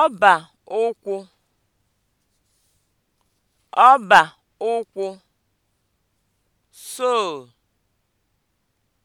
ọbà ụkwụ ọbà ụkwụ (sole)